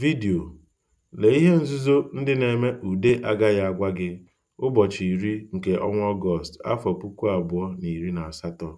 Vidio Lee ihe nzuzo ndị na-eme ude agaghị agwa gị ụbọchị iri nke ọnwa Ọgọst, afọ puku abụọ na iri na asatọ.